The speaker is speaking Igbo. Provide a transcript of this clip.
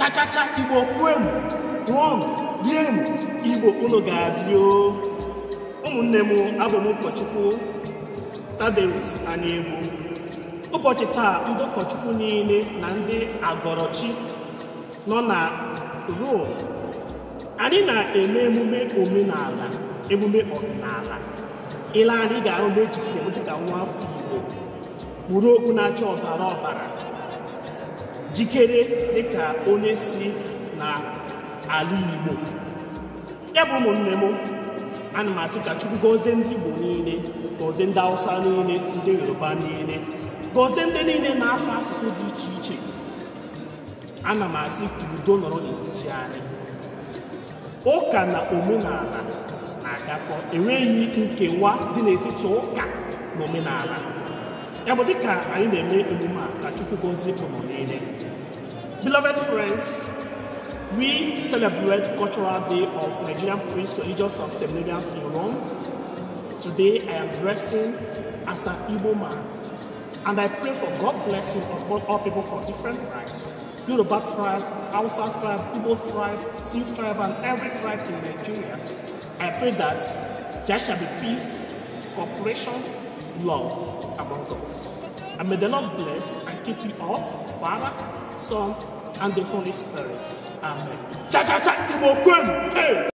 chachacha igbo kwenu ṅụọnụ rienụ igbo unu ga-adị ụmụnne m abụm m ụkọchukwu tadeus anegbu ụbọchị taa ndị ụkọchukwu niile na ndị agọrọchi nọ na Rome anyị na-eme emume omenala emume ọdịnala ile anyị ga-ahụ n'ejike dịka nwa afọ igbo kpuru okwu na-acha ọbara ọbara jikere dịka onye si na ala Igbo ya bụ ụmụnne m ana m asị ka Chukwu gozie ndị Igbo niile gozie ndị Hausa niile ndị Yoruba niile gozie ndị niile na-asụ asụsụ dị iche iche ana m asị ka udo nọrọ n'etiti anyị ụka na omenala na-agakọ enweghị nkewa dị n'etiti ụka na omenala ya bụ dịka anyị na-eme emume a ka Chukwu gozie ụmụ niile beloved friends we celebrate cultural day of Nigerian priests religious and seminarians in Rome today I am dressing as an Igbo man and I pray for God's blessing upon all people from different tribes. Yoruba tribe, Hausa tribe, Igbo tribe, Tiv tribe, and every tribe in Nigeria. I pray that there shall be peace, cooperation, love among us. And may the Lord bless and keep you all, Father, Son, and the Holy Spirit. Amen. Cha cha cha! Hey!